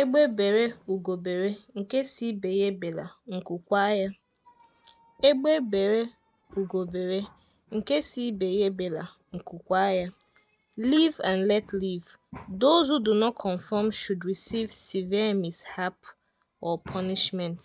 Egbe bere ugobere nke si ibe ya ebela, nku ya. Egbe nke and let live. Those who do not conform should receive severe mishap or punishment.